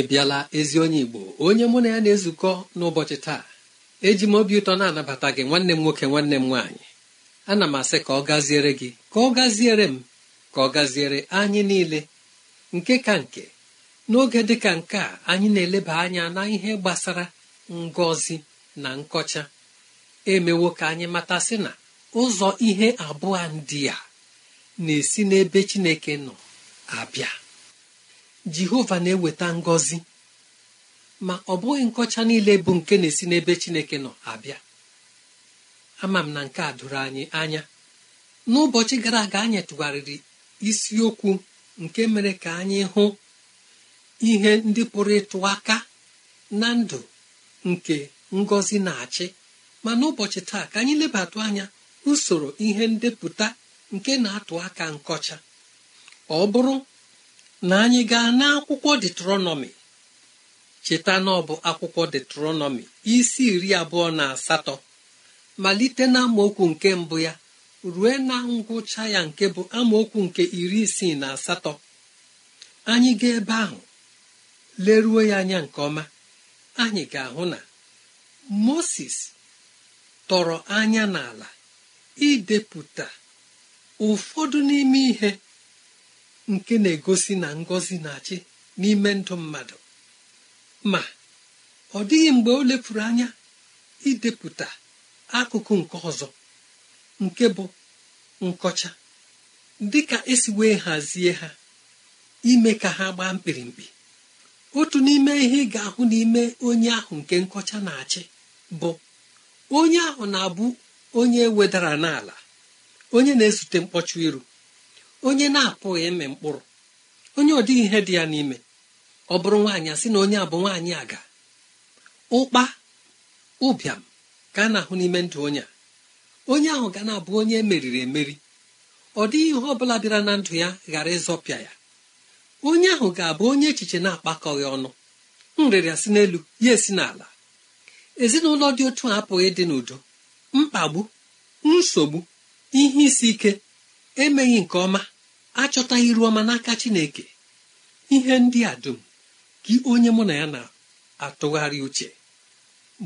ị bịala ezi onye igbo onye mụ na ya na-ezukọ n'ụbọchị taa eji m obi ụtọ na-anabata gị nwanne m nwoke nwanne m nwaanyị ana m asị ka ọ gaziere gị ka ọ gaziere m ka ọ gaziere anyị niile nke ka nke n'oge dị ka nke a anyị na-eleba anya na ihe gbasara ngọzi na nkọcha emewo ka anyị matasị na ụzọ ihe abụọ ndị a na-esi n'ebe Chineke nọ abịa jehova na-eweta ngọzi ma ọ bụghị nkọcha niile bụ nke na-esi n'ebe chineke nọ abịa ama m na nke a doro anyị anya n'ụbọchị gara aga anyị tụgharịrị isiokwu nke mere ka anyị hụ ihe ndị pụrụ ịtụ aka na ndụ nke ngọzi na-achị ma n'ụbọchị taa ka anyị lebatụ anya usoro ihe ndepụta nke na-atụ aka nkọcha ọ bụrụ na anyị gaa n'akwụkwọ detronọmi cheta na ọ bụ akwụkwọ detronọmi isi iri abụọ na asatọ malite na amaokwu nke mbụ ya rue na ngwụcha ya nke bụ amaokwu nke iri isii na asatọ anyị gaa ebe ahụ leruo ya anya nke ọma anyị ga-ahụ na moses tọrọ anya n'ala idepụta ụfọdụ n'ime ihe nke na-egosi na ngọzi na-achị n'ime ndụ mmadụ ma ọ dịghị mgbe o lepụrụ anya idepụta akụkụ nke ọzọ nke bụ nkọcha dị ka esi wee hazie ha ime ka ha gbaa mkpirimkpi otu n'ime ihe ị ga-ahụ n'ime onye ahụ nke nkọcha na-achị bụ onye ahụ na-abụ onye wedara n'ala onye na-ezute mkpọchụ iru onye na-apụghị ịmị mkpụrụ onye ọ dịghị ihe dị ya n'ime ọ bụrụ nwaanyị sị na onye a bụ nwaanyị aga ụkpa ụbịam ka a na-ahụ n'ime ndụ onye a onye ahụ ga na-abụ onye emeriri emeri ọ dịghị ihe ọ bụla bịara na ndụ ya ghara ịzọpịa ya onye ahụ ga-abụ onye echiche na-akpakọghị ọnụ nrịrịa si n'elu ya esi n'ala ezinụlọ dị otu a apụghị ịdị n'udo mkpagbu nsogbu ihe isi ike emeghị nke ọma achọtaghị iru ọma n'aka chineke ihe ndị a dum gị onye mụ na ya na-atụgharị uche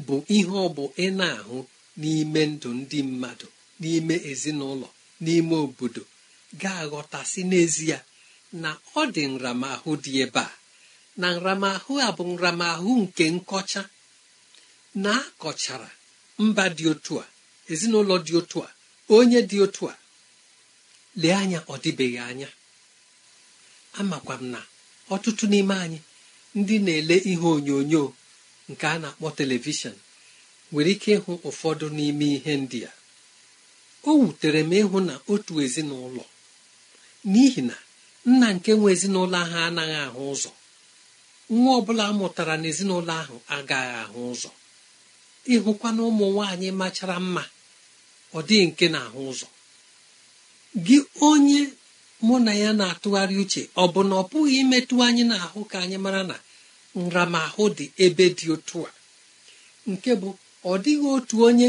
bụ ihe ọ bụ ị na-ahụ n'ime ndụ ndị mmadụ n'ime ezinụlọ n'ime obodo ga-aghọtasị n'ezie na ọ dị nramahụ dị ebe a na nramahụ a bụ nramahụ nke nkọcha na akọchara mba dị otu a ezinụlọ dị otu a onye dị otu a lee anya ọ dịbeghị anya amakwa m na ọtụtụ n'ime anyị ndị na-ele ihe onyonyo nke a na-akpọ telivishọn nwere ike ịhụ ụfọdụ n'ime ihe ndị a o wutere m ịhụ na otu ezinụlọ n'ihi na nna nke nwe ezinụlọ ahụ anaghị ahụ ụzọ nwa ọbụla mụtara ezinụlọ ahụ agaghị ahụ ụzọ ịhụkwa na ụmụ nwaanyị machara mma ọ dịghị nke na-ahụ ụzọ gị onye mụ na ya na-atụgharị uche ọ bụ na ọ pụghị imetụ anyị n'ahụ ka anyị mara na nramahụ dị ebe dị otu a nke bụ ọ dịghị otu onye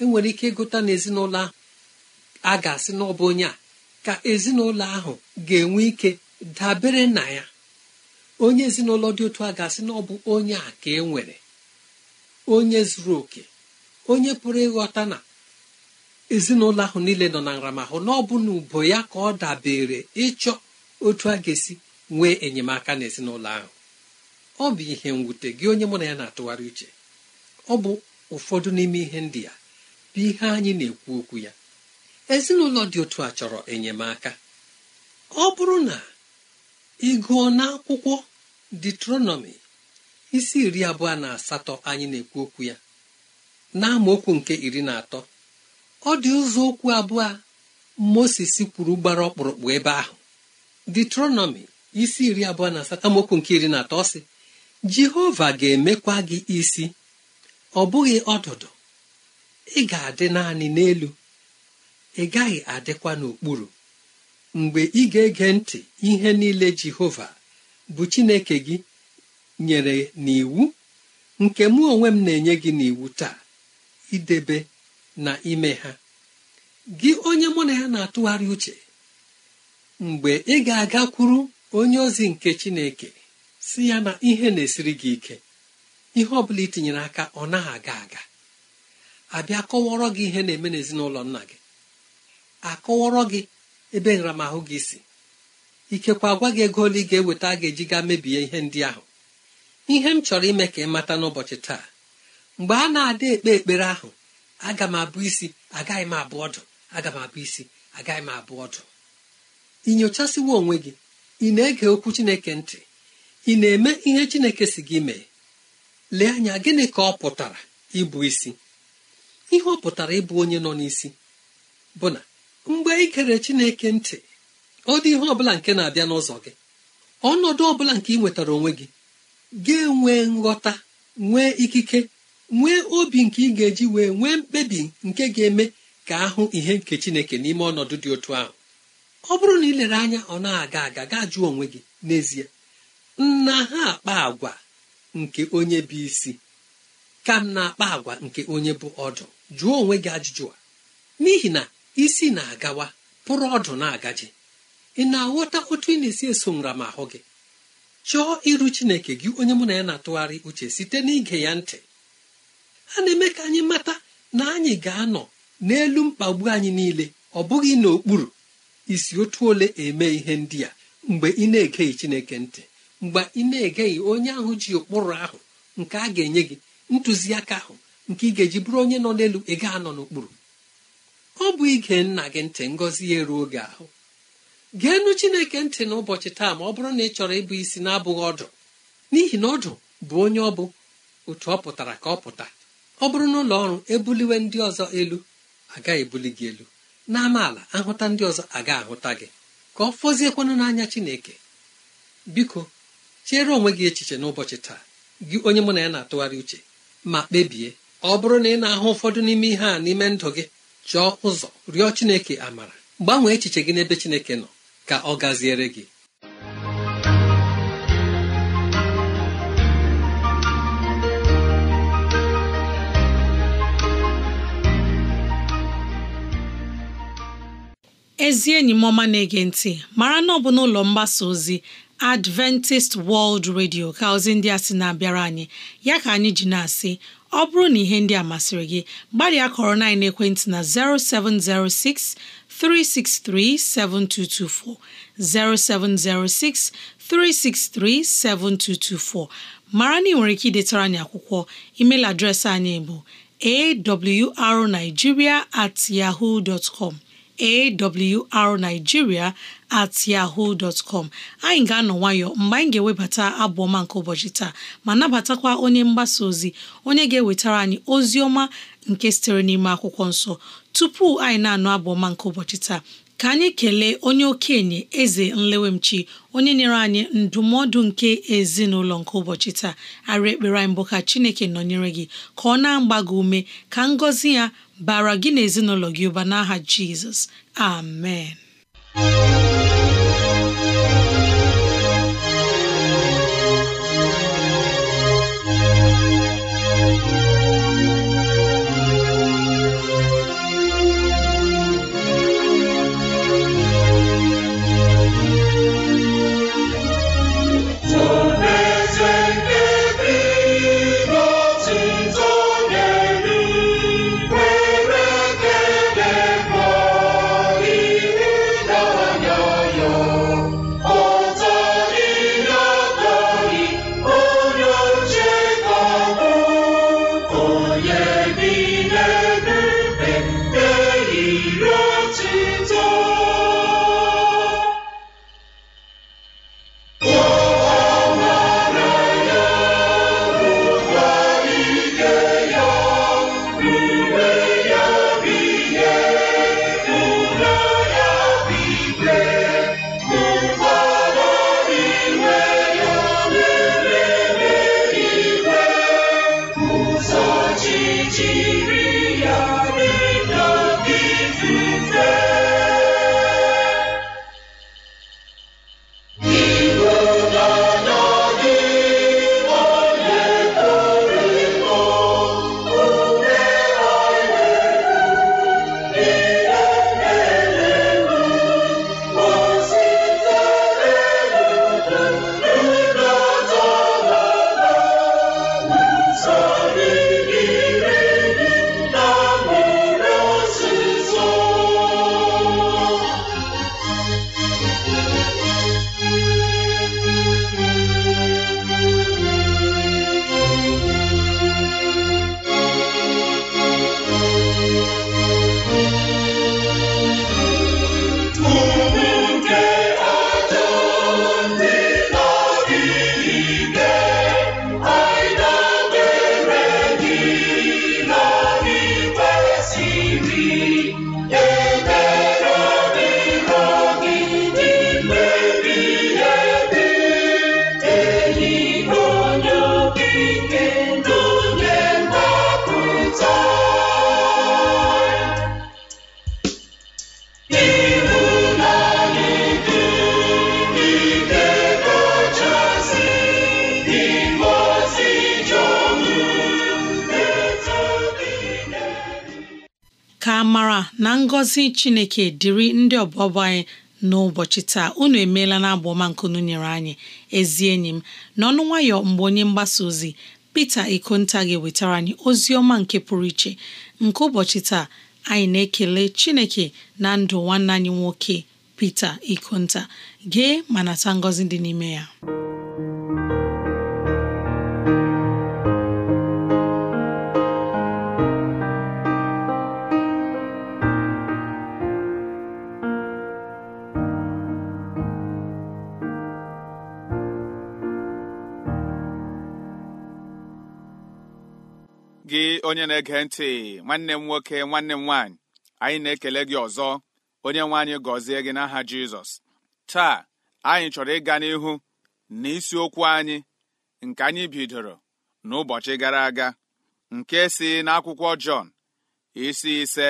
enwere ike ịgụta n'ezinụlọ ahụ a ga-asị n'ọbụ onye a ka ezinụlọ ahụ ga-enwe ike dabere na ya onye ezinụlọ dị otu a ga-asị na onye a ka e nwere onye zuru oke onye pụrụ ịghọta na ezinụlọ ahụ niile nọ na nramahụ na ọ bụ na ubo ya ka ọ dabere ịchọ otu a ga-esi nwee enyemaka n'ezinụlọ ahụ ọ bụ ihe mwute gị onye mụ na ya na-atụgharị uche ọ bụ ụfọdụ n'ime ihe ndị ya bụ ihe anyị na-ekwu okwu ya ezinụlọ dị otu a chọrọ enyemaka ọ bụrụ na ị gụọ akwụkwọ detronomi isi iri abụọ na asatọ anyị na-ekwu okwu ya na nke iri na atọ ọ dị ụzọ okwu abụọ moses kwuru gbara ọkpụrụkpụ ebe ahụ detronomi isi iri abụọ na asatọ nke iri na atọ sị jehova ga-emekwa gị isi ọ bụghị ọdụdụ ị ga-adị naanị n'elu ị gaghị adịkwa n'okpuru mgbe ị ga-ege ntị ihe niile jehova bụ chineke gị nyere n'iwu nke mụ onwe m na-enye gị n'iwu taa idebe na ime ha gị onye mụ na ya na-atụgharị uche mgbe ị ga-agakwuru onye ozi nke chineke si ya na ihe na-esiri gị ike ihe ọ bụla itinyere aka ọ naghị aga aga abịa kọwọrọ gị ihe na-eme n'ezinụlọ nna gị akọwọrọ gị ebe nramahụ gị si ikekwa gwa gị ego ole ị ga-eweta a ga-eji ga mebie ihe ndị ahụ ihe m chọrọ ime ka ị mata n'ụbọchị taa mgbe a na-ada ekpe ekpere ahụ aga m abụ isi agaghị m abụ ọdụ aga m abụ isi agaghị m abụ ọdụ ị nyochasiwo onwe gị ị na-ege okwu chineke ntị ị na-eme ihe chineke si gị mee lee anya gịnị ka ọ pụtara ịbụ isi ihe ọ pụtara ịbụ onye nọ n'isi bụ na mgbe ị gere chineke ntị ọ dị ihe ọbụla nke na-abịa n'ụzọ gị ọnọdụ ọbụla nke ị nwetara onwe gị ga-enwe nghọta nwee ikike nwee obi nke ị ga-eji wee nwee mkpebi nke ga-eme ka ahụ ihe nke chineke n'ime ọnọdụ dị otu ahụ ọ bụrụ na ị lere anya ọ na-aga aga gaa jụọ onwe gị n'ezie nna ha akpa agwa nke onye bụ isi ka m na-akpa agwa nke onye bụ ọdụ jụọ onwe gị ajụjụ a n'ihi na isi na-agawa pụrụ ọdụ na-agaji ị na-aghọta otu ị na-esi eso nramahụ gị chọọ iru chineke gị onye mụ na ya na-atụgharị uche site n'ige ya ntị a na-eme ka anyị mata na anyị ga-anọ n'elu mkpagbu anyị niile ọ bụghị n'okpuru isi otu ole eme ihe ndị a mgbe ị na-egeghị chineke ntị mgbe ị na-egeghị onye ahụ ji ụkpụrụ ahụ nke a ga-enye gị ntụziaka ahụ nke ị ga-eji bụrụ onye nọ n'elu ị ga anọ n'okpuru ọ bụ ige nna gị ntị ngọzi ya eruo gị ahụ geenụ chineke ntị n'ụbọchị taa ma ọ bụrụ na ị chọrọ ịbụ isi na-abụghị ọdụ n'ihi na ọdụ bụ onye ọ bụ otu ọ pụtara ka ọ pụta ọ bụrụ na ụlọ ọrụ ebuliwe ndị ọzọ elu agaghị ebuli gị elu n'amaala ahụta ndị ọzọ aga ahụta gị ka ọ fọziekwanụ n'anya chineke biko chere onwe gị echiche n'ụbọchị taa gị onye mụ na ya na-atụgharị uche ma kpebie ọ bụrụ na ị na-ahụ ụfọdụ n'ime ihe a n'ime ndụ gị chọọ ụzọ rịọ chineke amara gbanwee echiche gị n'ebe chineke nọ ka ọ gaziere gị ezi enyi m ọma na-ege ntị mara na ọ bụ n'ụlọ mgbasa ozi Adventist World Radio ka ozi ndị a sị na-abịara anyị ya ka anyị ji na-asị ọ bụrụ na ihe ndị a masịrị gị gbalịa kọrọ na ekwentị na 0706 363 7224 0706 363 7224 mara na ị nwere ike idetara anyị akwụkwọ email adreesị anyị bụ awrnigeria at yahoo dot com awrnigeria at yahoo dot com anyị ga-anọ nwayọ mgbe anyị ga-ewebata abụ ọma nke ụbọchị taa ma nabatakwa onye mgbasa ozi onye ga-ewetara anyị ozi ọma nke sitere n'ime akwụkwọ nsọ tupu anyị na-anụ abụ ọma nke ụbọchị taa ka anyị kelee onye okenye eze nlewemchi onye nyere anyị ndụmọdụ nke ezinụlọ nke ụbọchị taa arị ekpere anyị mbụ ka chineke nọnyere gị ka ọ na-agba gị ume ka ngọzi ya bara gị na ezinụlọ gị ụba n'aha Jizọs amen ngọzi chineke dịrị ndị ọbọbọ anyị n'ụbọchị taa unu emeela na abụ ọma nkunu nyere anyị ezi enyi m n'ọnụ nwayọ mgbe onye mgbasa ozi Pita Ikonta ga-ewetara anyị ozi ọma nke pụrụ iche nke ụbọchị taa anyị na-ekele chineke na ndụ nwanne anyị nwoke pete Ikonta gee ma nata ngọzi dị n'ime ya onye na-ege ntị nwanne m nwoke nwanne m nwaanyị anyị na-ekele gị ọzọ onye nwe anyị gọzie gị n'aha jizọs taa anyị chọrọ ịga n'ihu na isiokwu anyị nke anyị bidoro n'ụbọchị gara aga nke si n'akwụkwọ Jọn isi ise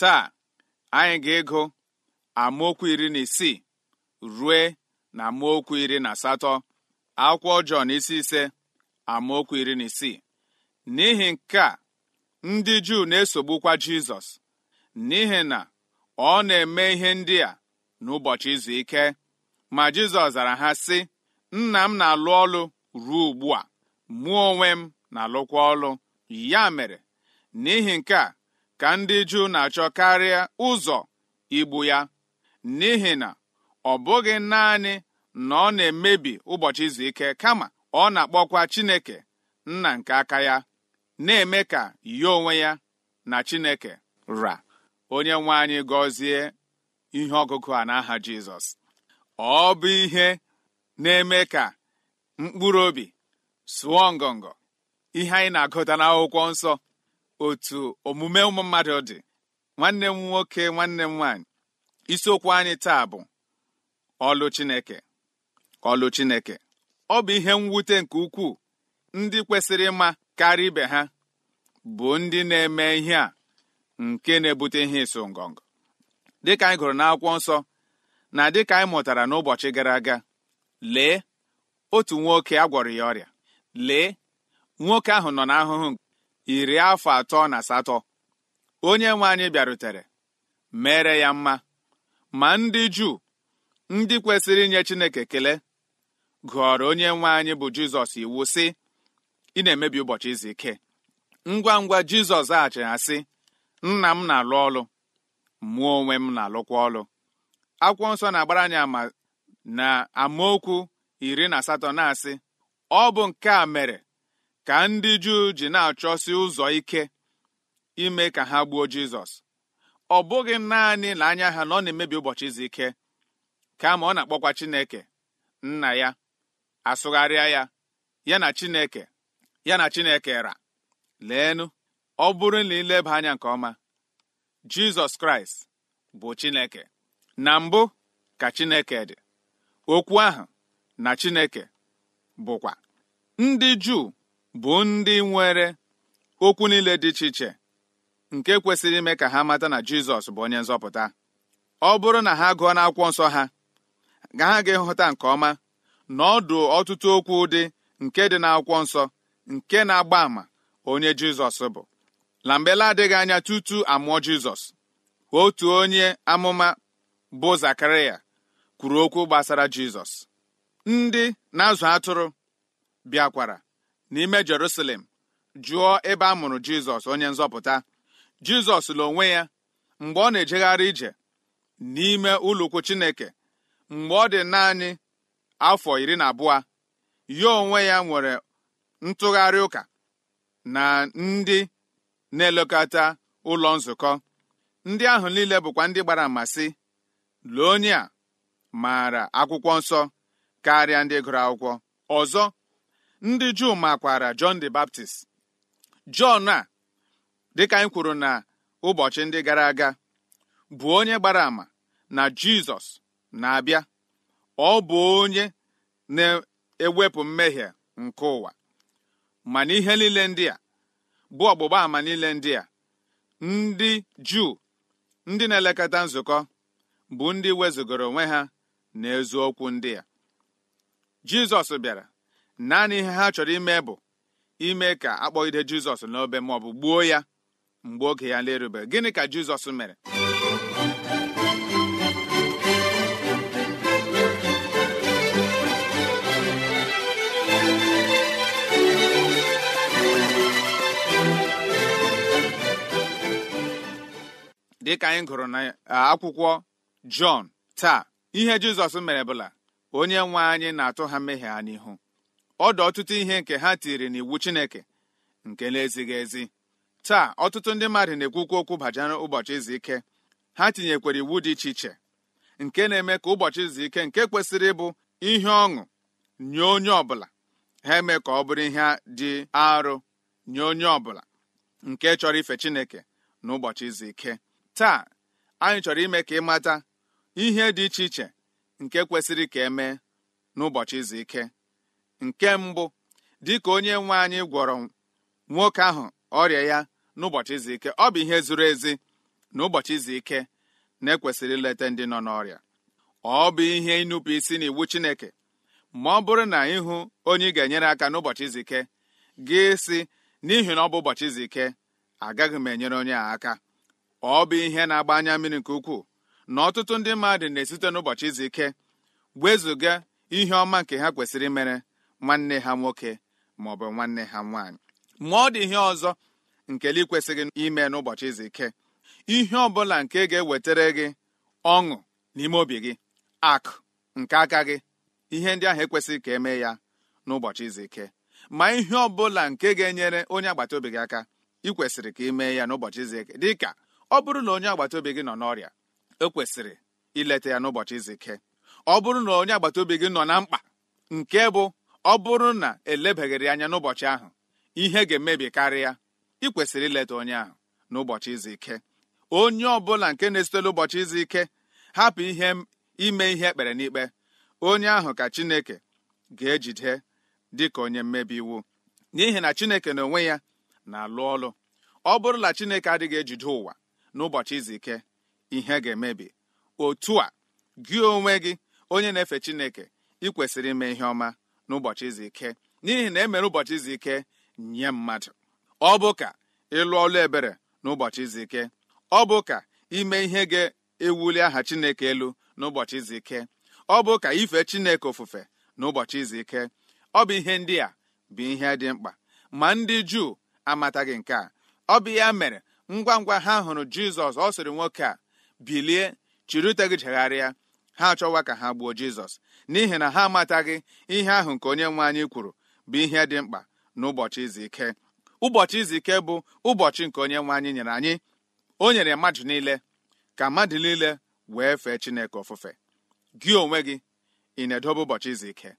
taa anyị ga-ego amaokwu iri na isii rue na amaokwu iri na asatọ akwụkwọ Jọn isi ise amaokwu iri na isii n'ihi nke a ndị Juu na-esogbukwa Jizọs n'ihi na ọ na-eme ihe ndị a n'ụbọchị izu ike ma Jizọs zara ha sị nna m na-alụ ọlụ ruo ugbu a mụ onwe m na-alụkwa ọlụ ya mere n'ihi nke a ka ndị Juu na-achọ karịa ụzọ igbu ya n'ihi na ọ bụghị naanị na ọ na-emebi ụbọchị izu ike kama ọ na-akpọkwa Chineke nna nke aka ya na-eme ka ya onwe ya na chineke ra onye nwe anyị gọzie ihe ọgụgụ a n'aha jizọs ọ bụ ihe na-eme ka mkpụrụ obi sụọ ngọngọ ihe anyị na-agụta n'akwụkwọ nsọ otu omume ụmụ mmadụ dị nwanne m nwoke nwanne m nwaanyị isiokwu anyị taa bụ ọlụ chineke ọlụ chineke ọ bụ ihe mwute nke ukwuu ndị kwesịrị ịma karịa ibe ha bụ ndị na-eme ihe a nke na-ebute ihe ịsụ ngọngọ dịka anyị gụrụ n'akwụkwọ nsọ na dịka anyị mụtara n'ụbọchị gara aga lee otu nwoke a gwọrọ ya ọrịa lee nwoke ahụ nọ n'ahụhụ iri afọ atọ na asatọ onye nwe anyị bịarutere mere ya mma ma ndị Juu ndị kwesịrị inye Chineke kele, gụọrọ onye nwe anyị bụ Jizọs iwu sị ị na-emebi ụbọchị izu ike ngwa ngwa jizọs zaghachiri asị nna m na-alụ ọlụ mụọ onwe m na-alụkwa ọlụ akwụkwọ nsọ na-agbara anyị ama na amaokwu iri na asatọ na-asị ọ bụ nke a mere ka ndị juu ji na-achọsi ụzọ ike ime ka ha gbuo jizọs ọ bụghị naanị na anya ha na ọ na-emebi ụbọchị izu ike kama ọ na-akpọkwa chineke nna ya asụgharịa ya ya na chineke ya na Chineke ra leenụ ọ bụrụ na ileba anya nke ọma Jizọs Kraịst bụ Chineke na mbụ ka Chineke dị okwu ahụ na Chineke bụkwa ndị Juu bụ ndị nwere okwu niile dị iche iche nke kwesịrị ime ka ha mata na Jizọs bụ onye nzọpụta ọ bụrụ na ha gụọ n'akwụkwọ nsọ ha ga ha ga-ịhụta nke ọma na ọdụ ọtụtụ okwu dị nke dị n'akwụkwọ nsọ nke na-agba àmà onye Jizọs bụ na mbela adịghị anya tutu amụọ Jizọs otu onye amụma bụ Zakaraya kwuru okwu gbasara Jizọs ndị na-azụ atụrụ bịakwara n'ime Jerusalem jụọ ebe a mụrụ Jizọs onye nzọpụta Jizọs la onwe ya mgbe ọ na-ejegharị ije n'ime ụlọukwu Chineke mgbe ọ dị naanị afọ iri na abụọ ya onwe ya nwere ntụgharị ụka na ndị na-elekọta ụlọ nzukọ ndị ahụ niile bụkwa ndị gbara ama lee onye a maara akwụkwọ nsọ karịa ndị gụrụ akwụkwọ ọzọ ndị juu makwara john the Baptist Jọn a dịka anyị kwuru na ụbọchị ndị gara aga bụ onye gbara ama na Jizọs na-abịa ọ bụ onye na-ewepụ mmehie nke ụwa ma n'ihe ihe niile ndị a bụ ọgbụgba ama niile ndị a ndị juu ndị na-elekọta nzukọ bụ ndị wezugoro onwe ha na ezu okwu ndị a jizọs bịara naanị ihe ha chọrọ ime bụ ime ka akpọgide jizọs n'obe maọbụ gbuo ya mgbe oge ya na gịnị ka jizọs mere dịka anyị gụrụ na akwụkwọ jọn taa ihe jizọs mere bụla onye nwe anyị na-atụ ha mmehie ha n'ihu ọdụ ọtụtụ ihe nke ha tiri n'iwu chineke nke na-ezighị ezi taa ọtụtụ ndị mmadụ na-ekwukwu okwu bajara ụbọchị izu ike ha tinyekwara iwu dị iche iche nke na-eme ka ụbọchị izu ike nke kwesịrị ịbụ ihe ọṅụ nye onye ọbụla ha eme ka ọ bụrụ ihe dị arụ nye onye ọbụla nke chọrọ ife chineke n'ụbọchị izu ike taa anyị chọrọ ime ka ị mata ihe dị iche iche nke kwesịrị ka e mee n'ụbọchị izu ike nke mbụ dịka onye nwe anyị gwọrọ nwoke ahụ ọrịa ya n'ụbọchị izu ike ọ bụ ihe zuru ezi na ụbọchị izu ike na-ekwesịrị ileta ndị nọ n'ọrịa ọ bụ ihe ịnụpụ isi n'iwu Chineke ma ọ bụrụ na ịhụ onye ị ga-enyere aka n'ụbọchị izu ike gị si n'ihi na ọ bụ ụbọchị izu ike agaghị m enyere onye a aka ọ bụ ihe na-agba anya mmiri nke ukwuu na ọtụtụ ndị mmadụ na-esite n'ụbọchị izu ike wezụga ihe ọma nke ha kwesịrị imere nwanne ha nwoke ma ọ bụ nwanne ha nwaanyị ma ọ dị ihe ọzọ nke ị kwesịghị ime n'ụbọchị izu ike ihe ọ bụla nke ga-ewetara gị ọṅụ n'ime obi gị akụ nke aka gị ihe ndị ahụ ekwesịghị ka emee ya n'ụbọchị izu ike ma ihe ọ bụla nke ga-enyere onye agbata obi gị aka ị kwesịrị ka ị mee ya n'ụbọchị izu ike dịka ọ bụrụ na onye agbata obi gị nọ n'ọrịa ekwesịrị ileta ya n'ụbọchị izike ọ bụrụ na onye agbata obi gị nọ na mkpa nke bụ ọ bụrụ na elebaghịrị anya n'ụbọchị ahụ ihe ga-emebi karịa ikwesịrị ileta onye ahụ n'ụbọchị izike ike onye ọbụla nke na-esitela ụbọchị izike ike hapụ ihe ime ihe ekpere n'ikpe onye ahụ ka Chineke ga-ejide dị ka onye mmebi iwu n'ihi na Chineke na onwe ya na-alụ ọlụ ọ bụrụ na Chineke adịghị ejide ụwa n'ụbọchị izu ike ihe ga-emebi otu a gị onwe gị onye na-efe chineke ị kwesịrị ime ihe ọma n'ụbọchị izu ike n'ihi na emere ụbọchị izu ike nye mmadụ ọ bụ ka ịlụ ọlụ ebere n'ụbọchị izu ike ọ bụ ka ime ihe ga-ewuli aha chineke elu n'ụbọchị izu ike ọ bụ ka ife chineke ofufe n'ụbọchị izu ike ọ bụ ihe ndị a bụ ihe dị mkpa ma ndị juu amataghị nke a ọ bụ ya mere ngwa ngwa ha hụrụ jizọs ọ sịrị nwoke a bilie chiri ute gị ha achọwa ka ha gbuo jizọs n'ihi na ha amataghị ihe ahụ nke onye nwe anyị kwuru bụ ihe dị mkpa n'ụbọchị izu ike ụbọchị izu ike bụ ụbọchị nke onye nwe anyị nyere anyị o nyere mmadụ niile ka mmadụ niile wee fee chineke ofufe gị onwe gị ị na-edobe ụbọchị izu ike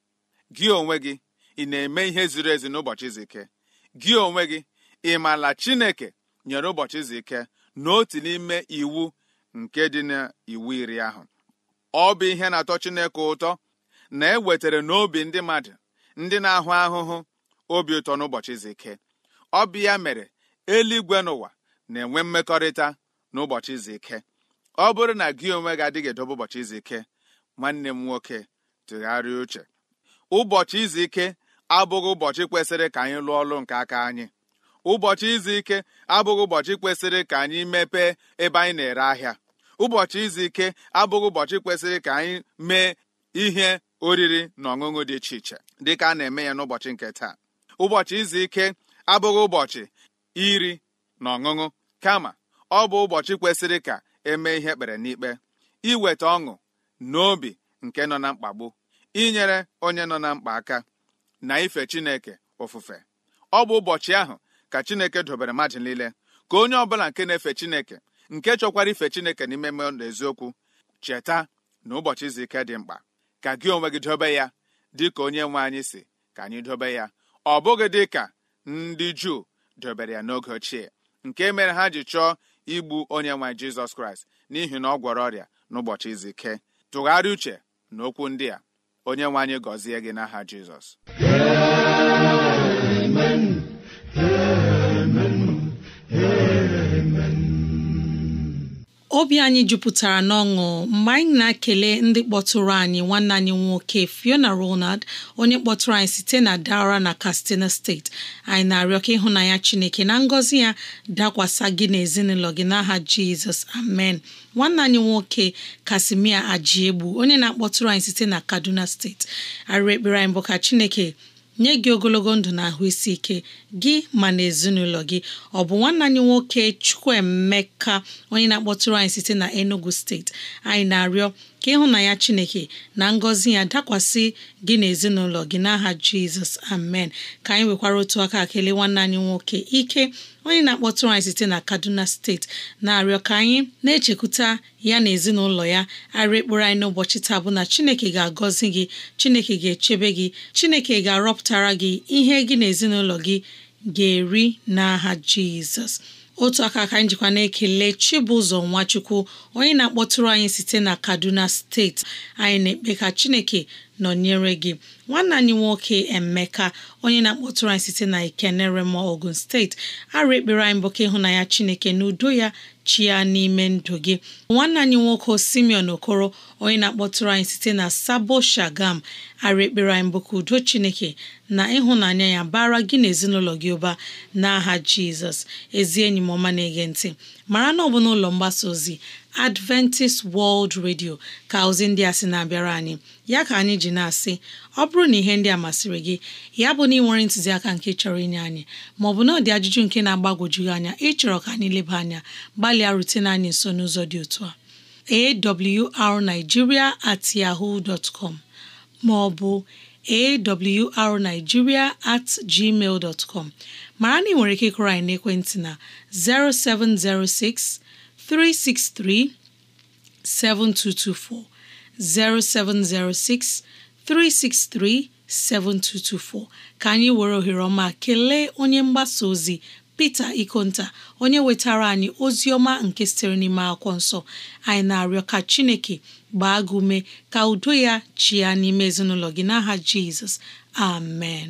gị onwe gị ị na-eme ihe ziri ezi n'ụbọchị izu ike gị onwe gị ị maala chineke nyere ụbọchị izu ike n'ime iwu nke dị n'iwu iri ahụ ọ bụ ihe na-atọ Chineke ụtọ na e wetara n'obi ndị mmadụ ndị na-ahụ ahụhụ obi ụtọ n'ụbọchị izu ike ọ bụ ya mere eluigwe n'ụwa na-enwe mmekọrịta n'ụbọchị izu ike ọ bụrụ na gị onwe gị adịghị edobe ụbọchị izu ike nwanne m nwoke tụgharịa uche ụbọchị izu ike abụghị ụbọchị kwesịrị ka anyị lụọ ọlụ nke aka anyị ụbọchị izu ike abụghị ụbọchị kwesịrị ka anyị mepee ebe anyị na-ere ahịa ụbọchị izu ike abụghị ụbọchị kwesịrị ka anyị mee ihe oriri na ọṅụṅụ dị iche iche dịka a na-eme ya n'ụbọchị nke taa ụbọchị izu ike abụghị ụbọchị iri na ọṅụṅụ kama ọ bụ ụbọchị kwesịrị ka emee ihe ekpere n'ikpe iweta ọṅụ n'obi nke nọ na mkpagbu inyere onye nọ na mkpa aka na ife Chineke ofufe ọ bụ ụbọchị ahụ ka chineke dobere mmadụ niile ka onye ọbụla nke na-efe chineke nke chọkwara ife chineke n'ime mmadụ eziokwu cheta na ụbọchị izu ike dị mkpa ka gị onwe gị dobe ya dị ka onye nwe anyị si ka anyị dobe ya ọ bụghị dị ka ndị juu dobere ya n'oge ochie nke mere ha ji chọọ igbu onye nwe jizọs kraịst n'ihi na ọ gwọrọ ọrịa n'ụbọchị izu ike tụgharịa uche na okwu ndị a onye nwe anyị gọzie gị n'aha jizọs obi anyị jupụtara n'ọṅụ mgbe anyị na-ekele ndị kpọtụrụ anyị nwanne anyị nwoke Fiona Ronald onye kpọtụrụ anyị site na Dara na Katsina steeti anyị na-arịọ ka ịhụnanya Chineke na ngọzi ya dakwasa gị na ezinụlọ gị n'aha Jizọs amen nwanne anyị nwoke Kasimia Ajiegbu onye na-akpọtụrụ anyị site na Kaduna steeti arịrị ekpere anyị bụ ka Chineke nye gị ogologo ndụ na ahụ isi ike gị ma na ezinụlọ gị ọ bụ nwanne anyị nwoke Chukwuemeka onye na-akpọtụrụ anyị site na Enugu steeti anyị na-arịọ ka ya Chineke na ngọzi ya dakwasị gị na ezinụlọ gị n'aha Jizọs amen ka anyị nwekwara otu aka kelee nwanne anyị nwoke ike onye na-akpọtụrụ anyị site na Kaduna steeti na-arịọ ka anyị na-echekwuta ya na ezinụlọ ya arịa ekpere anyị n'ụbọchị taa bụ na Chineke ga-agọzi gị Chineke ga-echebe gị Chineke ga-arọpụtara gị ihe gị na gị ga-eri n'aha Jizọs otu aka aka njikwa na-ekele Chibụzọ Nwachukwu onye na-akpọtụrụ anyị site na Kaduna steeti anyị na-ekpe ka Chineke nọnyere gị nwanne anyị nwoke Emeka onye na-akpọtụrụ anyị site na ma Ogun steeti arụ ekpere anyị bụ ka ịhụnanya Chineke na udo ya chi ya n'ime ndụ gị nwanne anyị nwoke Simeon Okoro onye na-akpọtụrụ anyị site na Sabo Shagam ara ekpere anyị ka udo Chineke na ịhụnanya ya bara gị na ezinụlọ gị ụba n'aha Jizọs ezi enyi m ọma na-ege ntị mara na ọ bụ n'ụlọ mgbasa ozi Adventist World Radio ka ozi ndị a sị na-abịara anyị ya ka anyị ji na-asị ọ bụrụ na ihe ndị a masịrị gị ya bụ na ị nwere ntụziaka nke chọrọ inye anyị maọbụ na ọ ajụjụ nke na-agbagwoju anya ịchọrọ ka anyị leba anya gbalịa rutene anyị nso n'ụzọ dị otu a awrnigeria at yahoo dot com maọbụ awrnigeria at gmail dot com mara na ị nwere ike ịkụrọ anyị n'ekwentị na 0706 363 7224 0706 363 7224 ka anyị were ohere ọma kelee onye mgbasa ozi Pita Ikonta onye wetara anyị ozi ọma nke sitere n'ime akwụkwọ nsọ anyị na-arịọ ka Chineke gbaa gị ume ka udo ya chịa n'ime ezinụlọ gị n'aha Jizọs amen